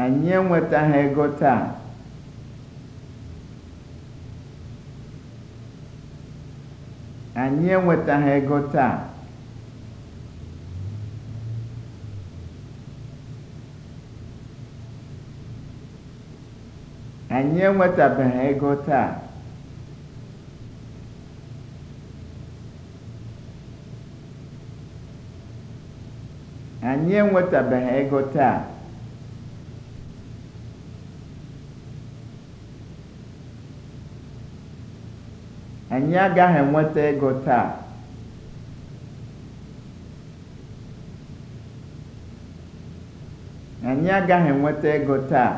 anyị enwetaghị ego taa. anyị enwetaghị ego taa. anyị enwetabeghị ego taa. anyị enwetabeghị ego taa Anyị agaghị enweta ego taa. Anyị agaghị enweta ego taa.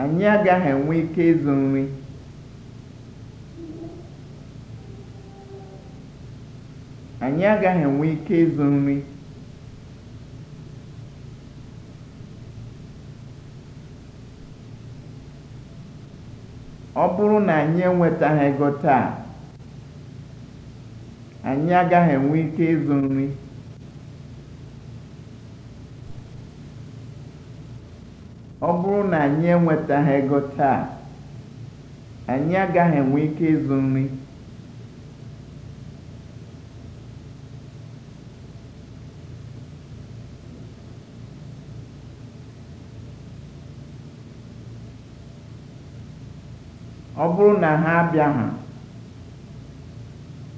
Anyị agaghị enwe ike ịzụ nri. Anyị agaghị enwe ike ịzụ nri. ọ bụrụ na anyị enwetaghị ego taa anyị agaghị enwe ike ịzụ nri ego taa anyị agaghị enwe ike ịzụ nri ọ bụrụ na ha abịaghị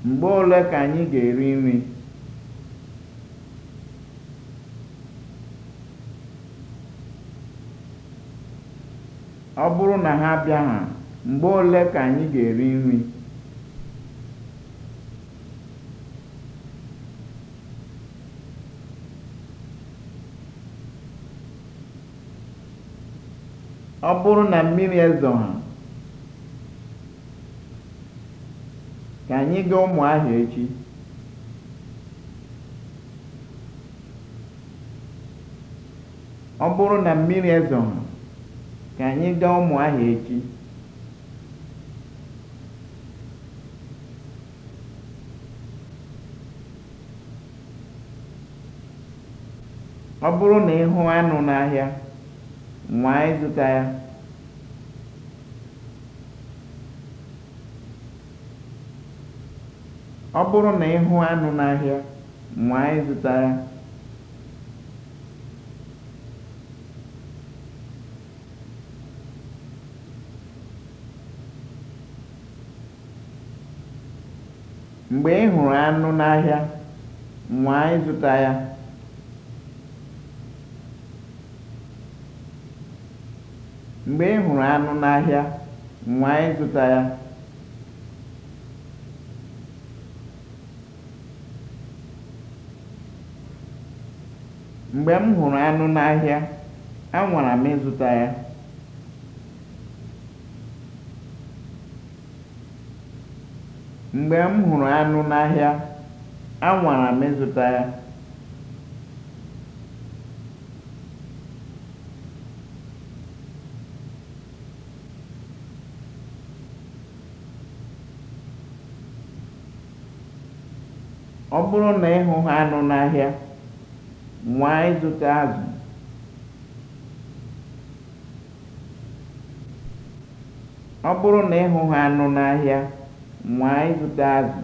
mgbe ole ka anyị ga-eri nri ọ bụrụ na ha abịaghị mgbe ole ka anyị ga-eri nri ọ bụrụ na mmiri ha. Ka anyị gaa ahịa echi. Ọ bụrụ na mmiri ezoghị, ka anyị gaa ahịa echi. Ọ bụrụ na ị hụ anụ n'ahịa, nwaa ịzụta ya. Ọ bụrụ na ị hụ anụ n'ahịa, nwaa ịzụta ya. Mgbe ị hụrụ anụ n'ahịa, nwaa zụta ya. Mgbe ị hụrụ anụ n'ahịa, nwaa ịzụta ya. Mgbe m hụrụ anụ n'ahịa, anwara m ịzụta ya. Ọ bụrụ na ị hụ anụ n'ahịa nwaa ịzụta azụ ọ bụrụ na ị hụghị anụ n'ahịa nwaa ịzụta azụ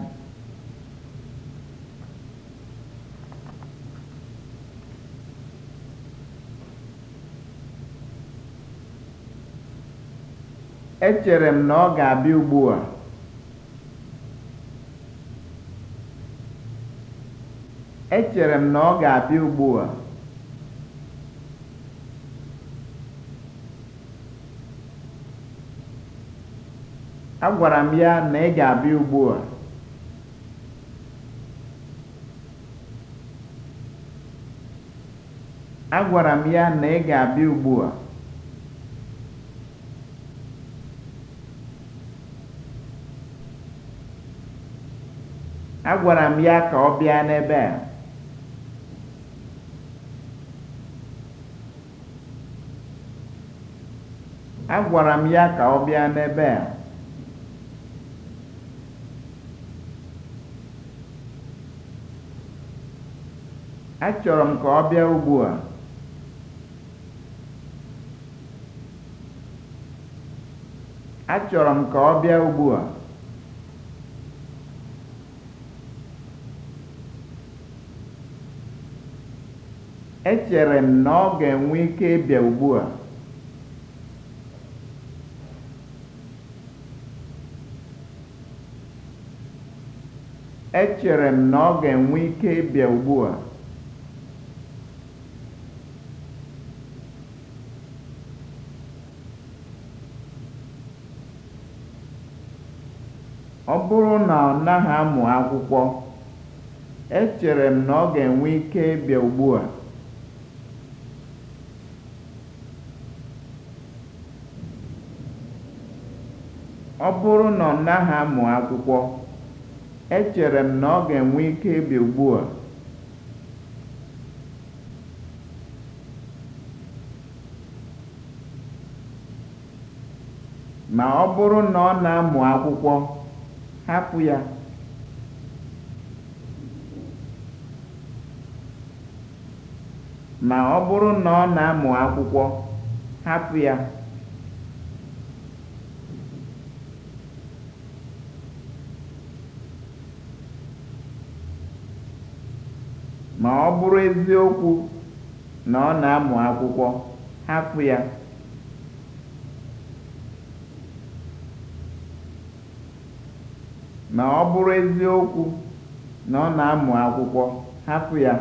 echere m na ọ ga-abịa ugbu a Echere m na ọ ga-abịa ugbu a. Agwara m ya na ị ga-abịa ugbu a. Agwara m ya na ị ga-abịa ugbu a. Agwara m ya ka ọ bịa n'ebe a. Agwara m ya ka ọ bịa n'ebe a. Achọrọ m ka ọ bịa ugbu a. Achọrọ m ka ọ bịa ugbu Echere m na ọ ga-enwe ike ịbịa ugbu a. Echere m na ọ ga-enwe ike ịbịa ugbua. Ọ bụrụ na ọ naghị amụ akwụkwọ, echere m na ọ ga-enwe ike ịbịa ugbua. Ọ bụrụ na ọ naghị amụ akwụkwọ Echere m na ọ ga-enwe ike ịbịa ugbua. Ma ọ bụrụ na ọ na-amụ akwụkwọ, hapụ Ma ọ bụrụ na ọ na-amụ akwụkwọ, hapụ ya. Na ọ bụrụ eziokwu na ọ na-amụ akwụkwọ, hapụ ya. Na ọ bụrụ eziokwu na ọ na-amụ akwụkwọ, hapụ ya.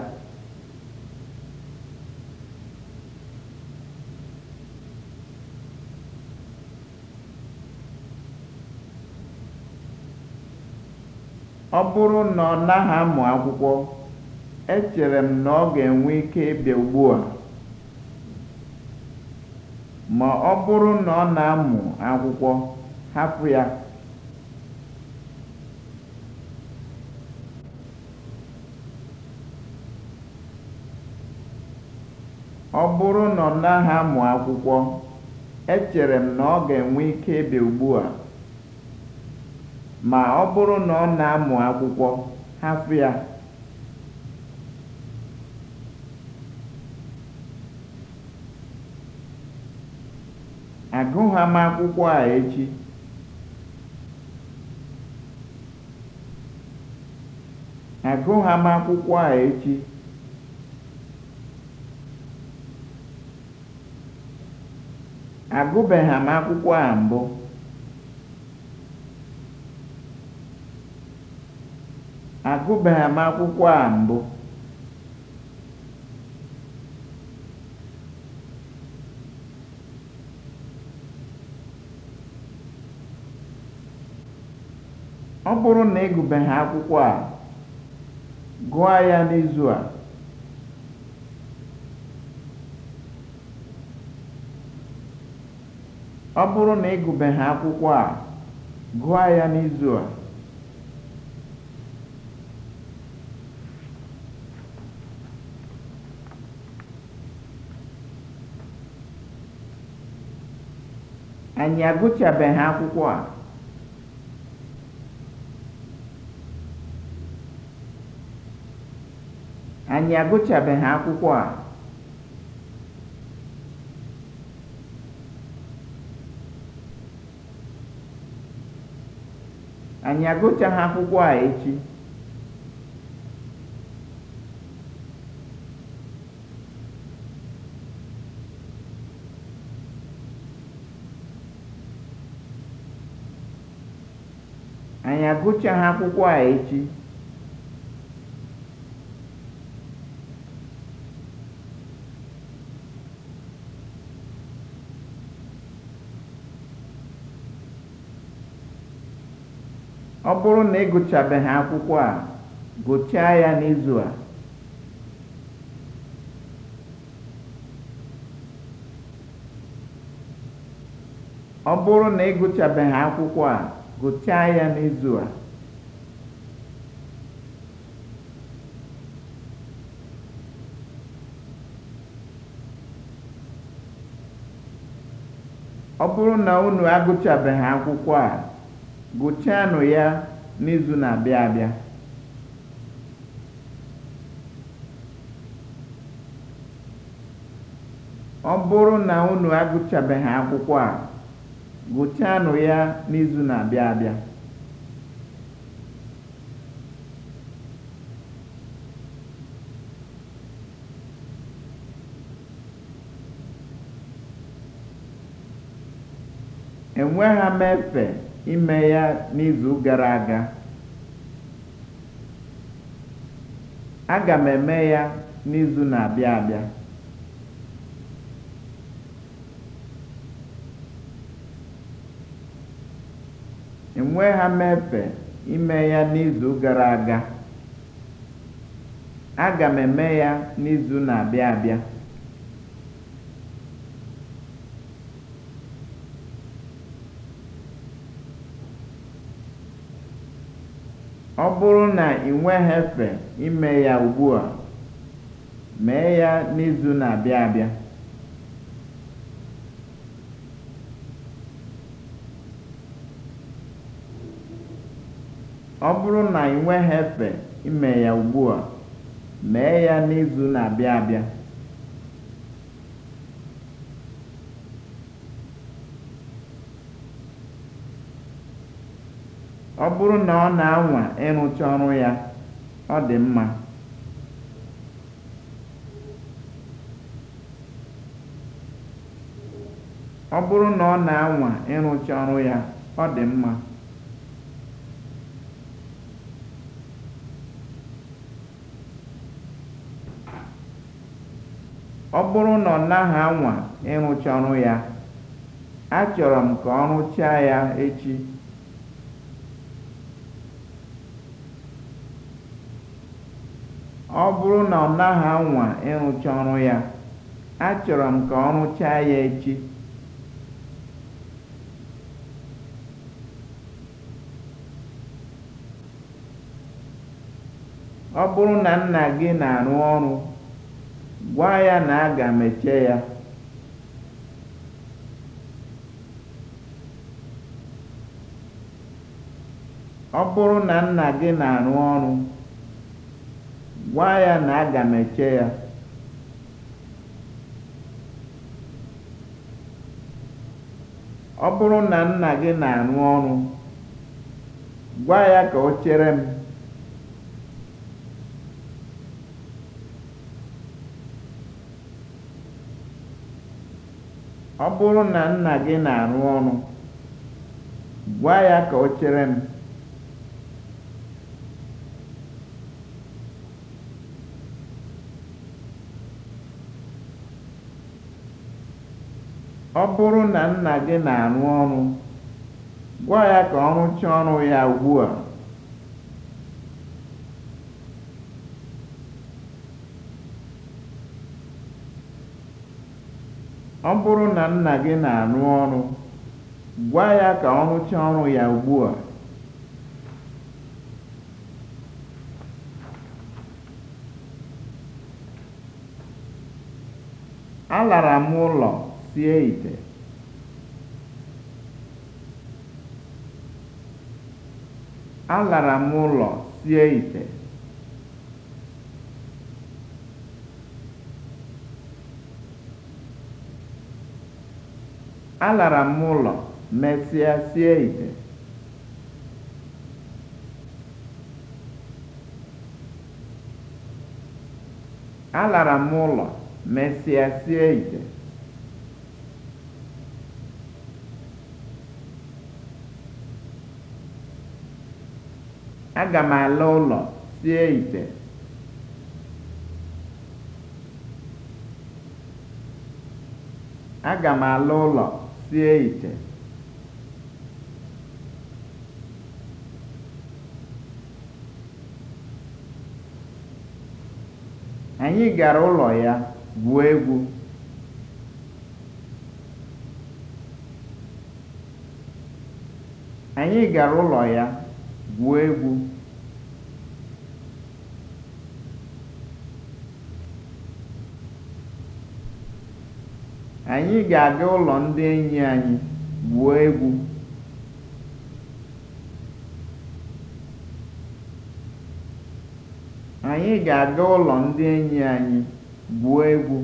ọ bụrụ na ọ naghị amụ akwụkwọ Echere m na ọ ga-enwe ike ịbịa ugbu ma bụrụ na ọ echere m na ọ ga-enwe ike ịbịa a ma ọ bụrụ na ọ na-amụ akwụkwọ, hapụ ya. Agụgha m akwụkwọ a echi. Agụgha m akwụkwọ a echi. Agụbeghị m akwụkwọ a mbụ. Agụbeghị m akwụkwọ a mbụ. Ọ bụrụ na ị gụbeghị akwụkwọ a, gụọ ya n'izu a. Ọ bụrụ na ị akwụkwọ a, gụọ ya n'izu a. Anyị agụchabeghị akwụkwọ a. anyị agụchabeghị akwụkwọ a anyị agụchaghị akwụkwọ a echi anyị agụchaghị akwụkwọ a echi ọ bụrụ na ị gụchabeghị akwụkwọ a gụchaa ya n'izu a ọ bụrụ na ị gụchabeghị akwụkwọ a gụchaa ya n'izu a ọ bụrụ na unu agụchabeghị akwụkwọ a Gụchanụ ya n'izu na-abịa abịa. Ọ bụrụ na unu agụchabeghị akwụkwọ a, gụchanụ ya n'izu na-abịa abịa. Enweghị m efe. ime ya n'izu gara aga. Aga m eme ya n'izu na-abịa abịa. Enwe ha mefe ime ya n'izu gara aga. Aga m eme ya n'izu na-abịa abịa. Ọ bụrụ na ị efe ime ya ugbua, mee ya n'izu na ime ya mee ya n'izu na-abịa abịa. Ọ bụrụ na ọ na-anwa ịrụcha ọrụ ya, ọ dị mma. Ọ bụrụ na ọ na-anwa ịrụcha ọrụ ya, ọ dị mma. Ọ bụrụ na ọ naghị anwa ịrụcha ọrụ ya, achọrọ m ka ọ rụchaa ya echi. ọ bụrụ na ọ naghị anwa ịrụcha ọrụ ya achọrọ m ka ọ rụchaa ya echi ọ bụrụ na nna gị na-arụ ọrụ gwa ya na aga m eche ya ọ bụrụ na nna gị na-arụ ọrụ Gwa ya na aga m eche ya. Ọ bụrụ na nna gị na-arụ ọrụ, gwa ya ka o Ọ chere m. Ọ bụrụ na nna gị na-arụ ọrụ, gwa ya ka ọ rụchaa ọrụ ya ugbua. Ọ bụrụ na nna gị na-arụ ọrụ, gwa ya ka ọ rụchaa ọrụ ya ugbua. Alara m ụlọ. sie alara m ụlọ sie ite alara m ụlọ mesịa sie ite alara m ụlọ mesịa sie ite Aga m ala ụlọ sie ite. Aga m ala ụlọ sie ite. Anyị gara ụlọ ya gwuo egwu. Anyị gara ụlọ ya. gwuo egwu Anyị ga-aga ụlọ ndị enyi anyị gwuo egwu. Anyị ga-aga ụlọ ndị enyi anyị gwuo egwu.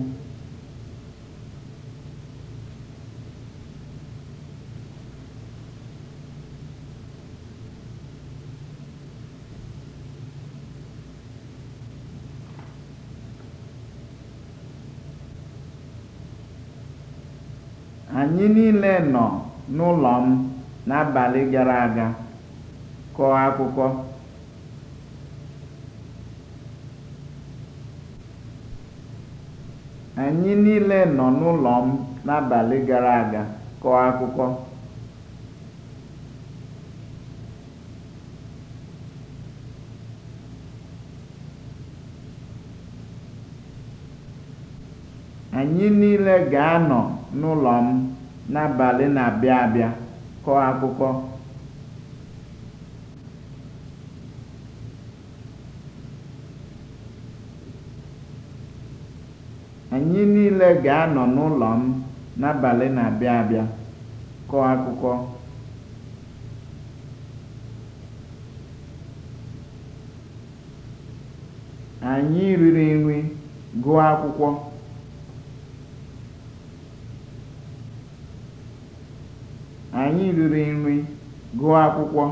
Anyị niile nọ n'ụlọ m n'abalị gara aga kọọ akụkọ. Anyị niile nọ n'ụlọ m n'abalị gara aga kọọ akụkọ. ga-anọ n'ụlọ m. n'abalị na-abịa abịa kọọ akwụkwọ anyị niile ga-anọ n'ụlọ m n'abalị na-abịa abịa kọọ akwụkwọ anyị riri nri gụọ akwụkwọ Anyị riri nri, gụọ akwụkwọ.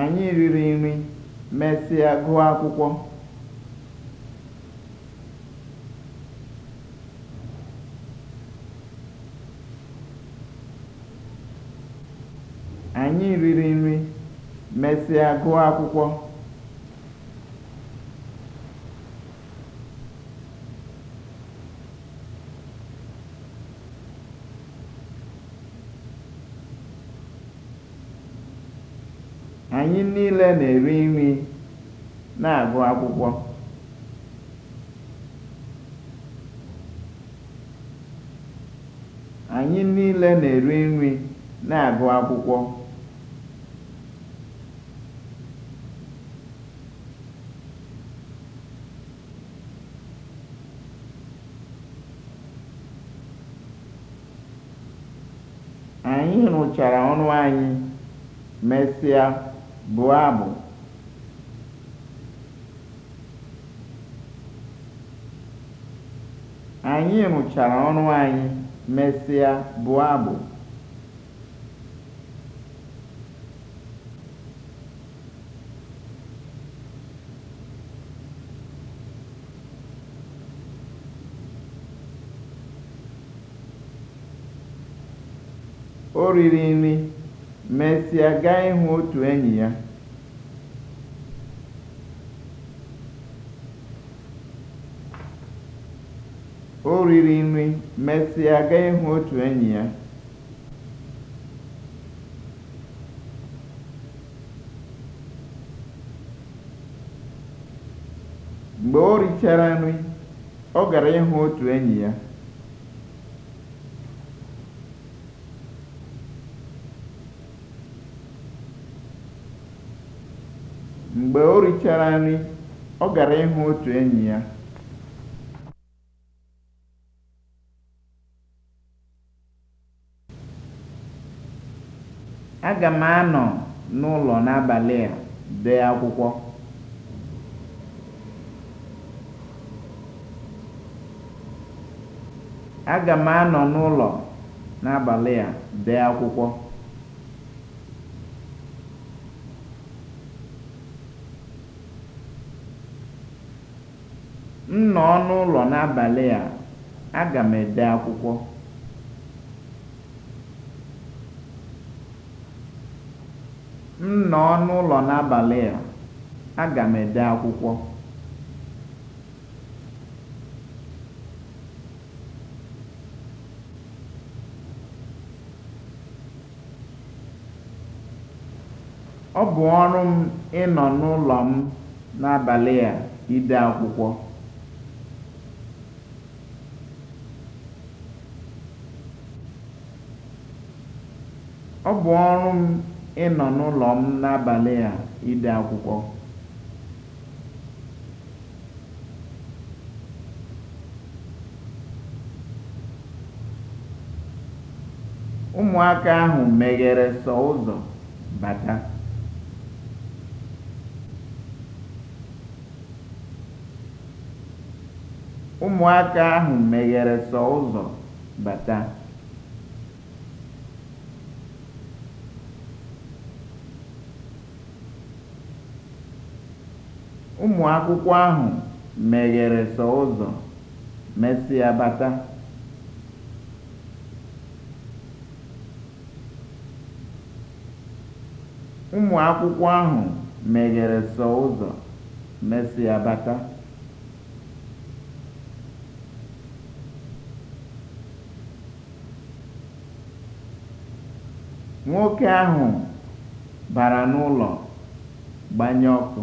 Anyị riri nri, mesịa gụọ akwụkwọ. Anyị riri nri, mesịa gụọ akwụkwọ. niile na-eri nri na-agụ akwụkwọ. Anyị niile na-eri nri na-agụ akwụkwọ. Anyị rụchara ọrụ anyị, mesịa. bụọ abụ anyị rụchara ọrụ anyị mesịa bụọ abụ o riri nri mesịa gaa ịhụ otu enyi ya o riri nri mesịa gaa ịhụ otu enyi ya mgbe o richara nri ọ gara ịhụ otu enyi ya mgbe o richara nri, ọ gara ịhụ otu enyi ya. Aga m anọ n'ụlọ n'abalị a dee Aga m anọ n'ụlọ n'abalị a dee akwụkwọ. M nọ n'ụlọ n'abalị a, aga m ede akwụkwọ. M nọ n'ụlọ n'abalị a, aga m ede akwụkwọ. Ọ bụ ọrụ m ịnọ n'ụlọ m n'abalị a ide akwụkwọ. Ọ bụ ọrụ m ịnọ n'ụlọ m n'abalị a ide akwụkwọ. Ụmụaka ahụ meghere Ụmụaka ahụ meghere sọ ụzọ bata. Ụmụ akwụkwọ ahụ meghere sọ ụzọ, mesịa bata. bata. Nwoke ahụ bara n'ụlọ gbanye ọkụ.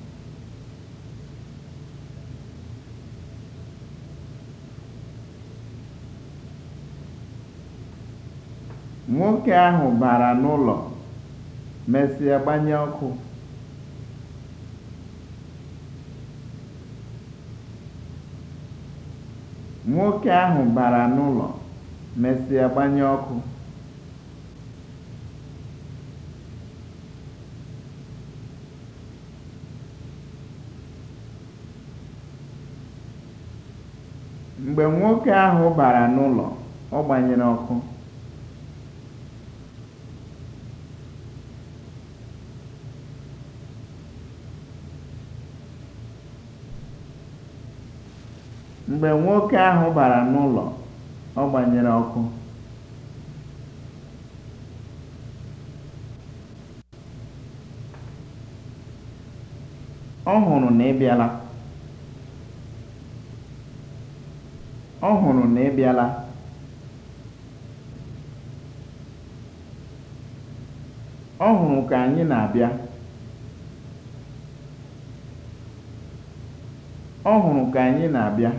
Nwoke ahụ bara n'ụlọ, mesịa gbanye ọkụ. Nwoke ahụ bara n'ụlọ, mesịa gbanye ọkụ. Mgbe nwoke ahụ bara n'ụlọ, ọ gbanyere ọkụ. Mgbe nwoke ahụ bara n'ụlọ, ọ gbanyere ọkụ. Ọ hụrụ na ị bịala. Ọ hụrụ na ị bịala. Ọ hụrụ ka anyị na-abịa. Ọ hụrụ ka anyị na-abịa.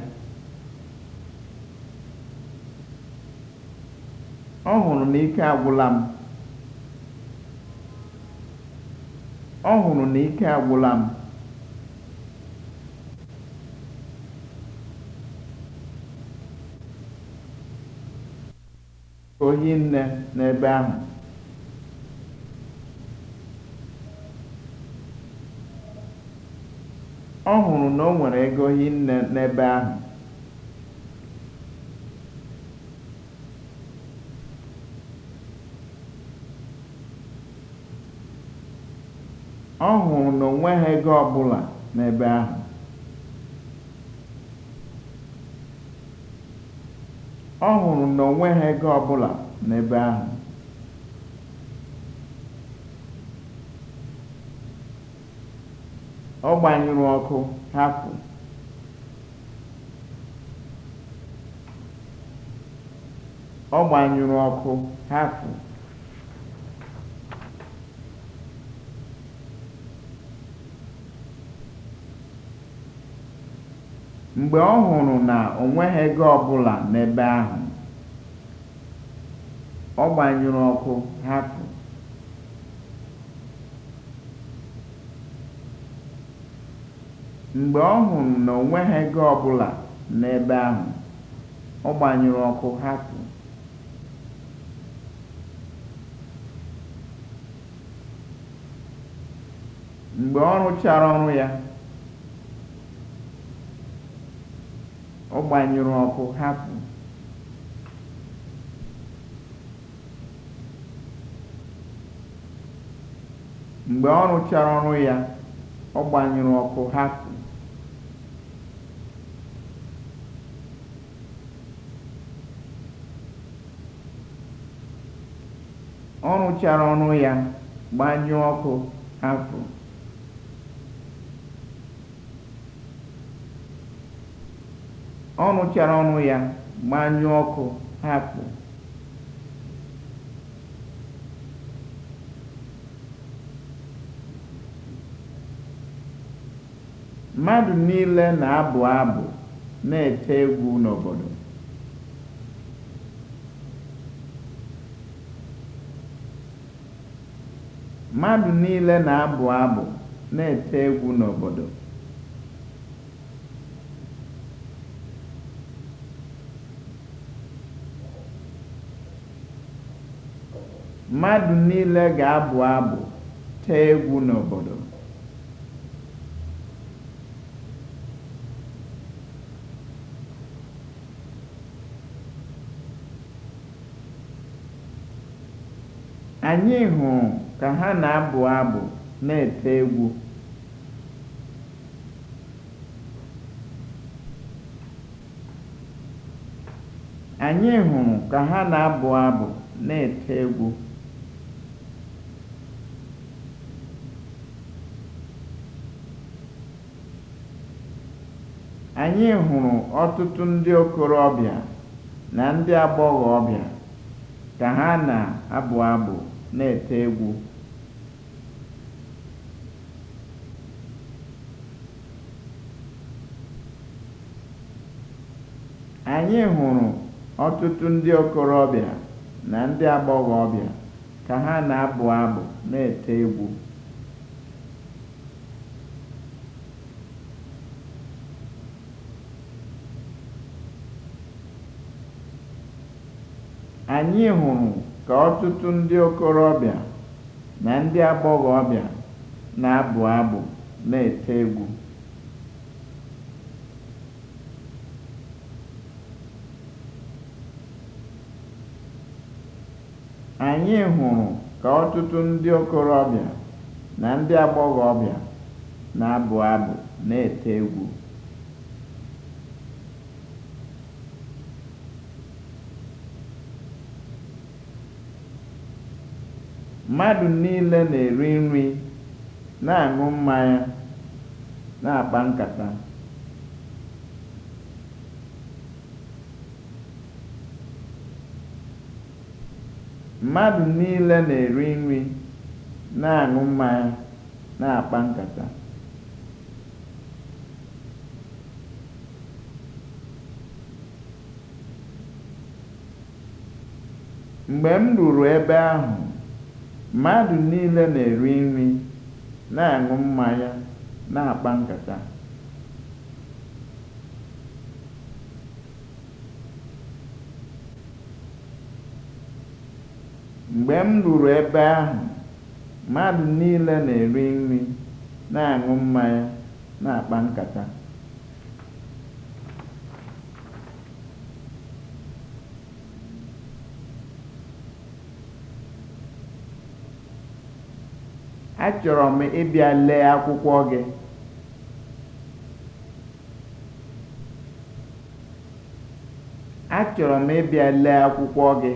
ọ hụrụ na ike agwụla m ọ hụrụ na ike agwụla m ohi ọ hụrụ na o nwere ego ohi nne n'ebe ahụ ọ hụrụ na onwe ha ego ọbụla n'ebe ahụ ọ hụrụ n'ebe ahụ ọ gbanyụrụ ọkụ hapụ ọ ọkụ hapụ mgbe ọ hụrụ na o nweghị ego ọbụla n'ebe ahụ, ọ gbanyụrụ ọkụ hapụ. mgbe ọ hụrụ na o nweghị ego ọbụla n'ebe ahụ, ọ gbanyụrụ ọkụ hapụ. mgbe ọ rụchara ọrụ ya ọ gbanyụrụ ọkụ hapụ mgbe ọ rụchara ọrụ ya ọ gbanyụrụ gbanyụọ ọkụ hapụ ọ chara ọnụ ya gbanyụọ ọkụ hapụ mmadụ niile na-abụ abụ na-ete egwu n'obodo mmadụ niile na-abụ abụ na-ete egwu n'obodo Mmadụ niile ga-abụ abụ, tee egwu n'obodo. Anyị hụrụ ka ha na-abụ abụ na-ete ka ha na-abụ abụ na-ete egwu. Anyị hụrụ ọtụtụ ndị okorobịa na ndị agbọghọbịa ka ha na-abụ abụ na-ete egwu. ndị okorobịa na ka ha na-abụ abụ na-ete egwu. anyị hụrụ ka ọtụtụ ndị okorobịa na ndị agbọghọbịa na-abụ abụ na-ete egwu ndị okorobịa na na-abụ abụ na-ete egwu Mmadụ niile na-eri nri, na-aṅụ mmanya, na-akpa nkata. Mmadụ niile na-eri nri, na-aṅụ mmanya, na-akpa nkata. Mgbe m ruru ebe ahụ Mmadụ niile na-eri nri, na-aṅụ mmanya, na Mgbe m ruru ebe ahụ, mmadụ niile na-eri nri, na-aṅụ mmanya, na-akpa nkata. achọrọ m ịbịa lee akwụkwọ gị m ịbịa lee akwụkwọ gị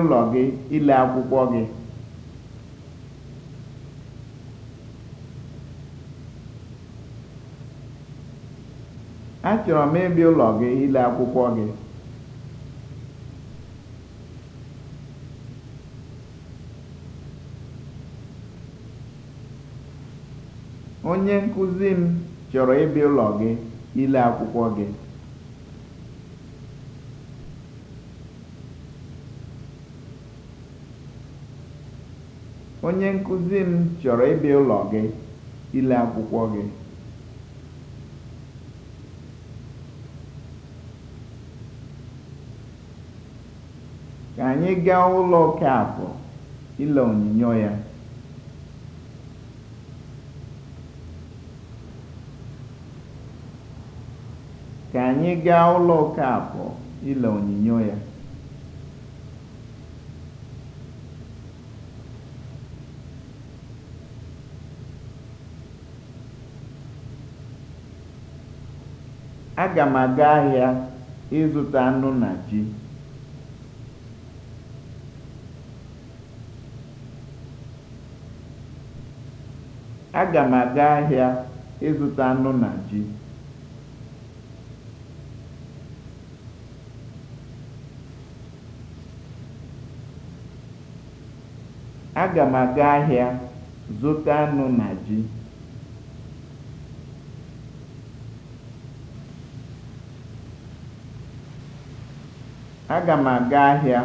ụlọ gị ile akwụkwọ gị Achọrọ m ịbịa ụlọ gị ile akwụkwọ gị. Onye nkụzi m chọrọ ụlọ gị ile akwụkwọ gị. Onye nkụzi m chọrọ ịbịa ụlọ gị ile akwụkwọ gị. ka anyị gaa ụlọ Okafọ ile onyinyo ya. ka ile onyinyo ya. Aga m aga ahịa ịzụta anụ na ji. Aga m aga ahịa ịzụta anụ na ji. Aga m aga ahịa zụta anụ na ji. Aga m aga ahịa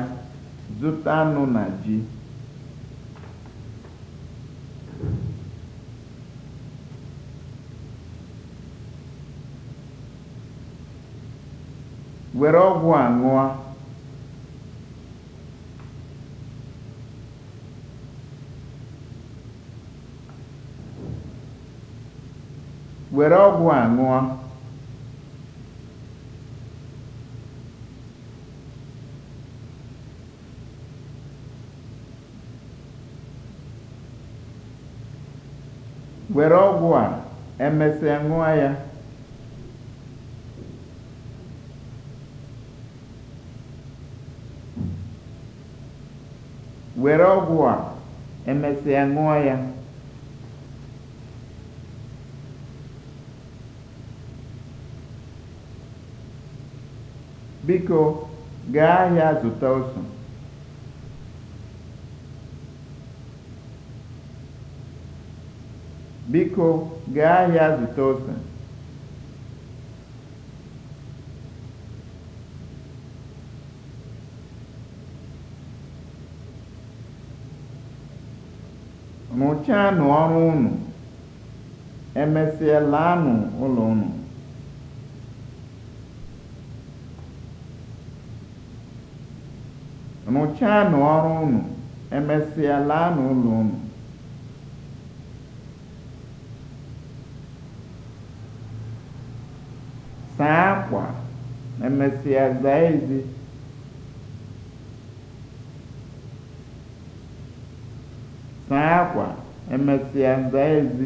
zụta anụ na ji. were ọgwụ a ṅụọ. were ọgwụ a ṅụọ were ọgwụ a emesịa ṅụọ ya were ọgwụ a emesịa ṅụọ ya biko gaa ahịa zụta ose biko gaa ahịa zụta ose Rụchaanụ ọrụ unu, emesịa laanụ ụlọ unu. Rụchaanụ ọrụ unu, Saa akwa, emesịa zaa ezi. saa akwa emesịa nza ezi